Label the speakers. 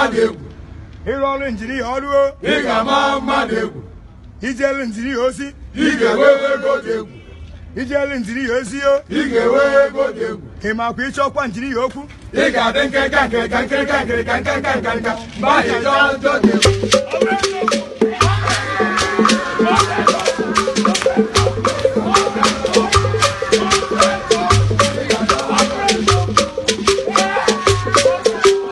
Speaker 1: mmadụ egwu ịrụ ọrụ injinia ọrụ ị ga-ama dị egwu ijele injinia ozi ị ga-enwe ego dị egwu ijele injinia ozi o ị ga-enwe ego dị egwu ị makwa ịchọkwa injinia okwu ị ga-adị nkenka nkenka nkenka nkenka nkenka nkenka mgbe ahụ ịchọ njọ dị egwu